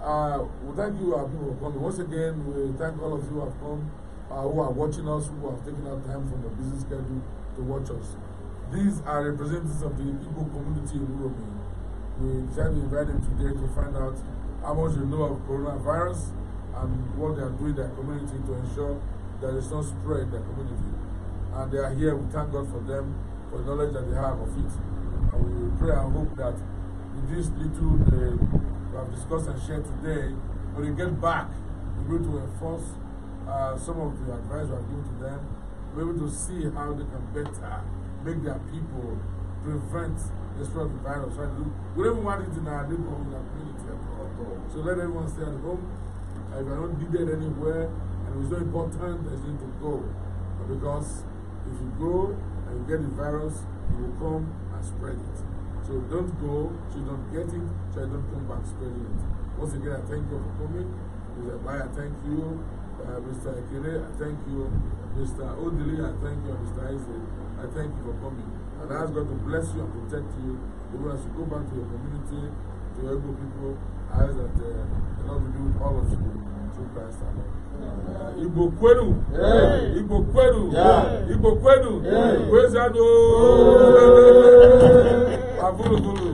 Uh, well, thank you, our people, for coming. Once again, we thank all of you who have come, uh, who are watching us, who have taken our time from your busy schedule to watch us. These are representatives of the Igbo community in Uromi. We decided to invite them today to find out how much they know of coronavirus and what they are doing in their community to ensure that it's not spread in their community. And they are here. We thank God for them, for the knowledge that they have of it we pray and hope that with this little uh, we have discussed and shared today, when we get back, we're able to enforce uh, some of the advice we have given to them. We're able to see how they can better make their people prevent the spread of the virus. Right? We don't want it in our neighborhood, in our community at all. So let everyone stay at home. Uh, if you're not needed anywhere, and it's not important, there's need to go. But because if you go and you get the virus, you will come spread it. So don't go, so don't get it, so you don't come back spreading it. Once again, I thank you for coming. Mr. Bai, thank you. Uh, Mr. Ekele, I thank you. Mr. Odili, I thank you. Mr. Isaac, I thank you for coming. And I ask God to bless you and protect you. Even as you go back to your community, to your people, I ask that uh, the Lord will be all of you. Through Christ our Lord. Igbo kwenu Igbo kwenu Igbo kwenu kwezado avuruvuru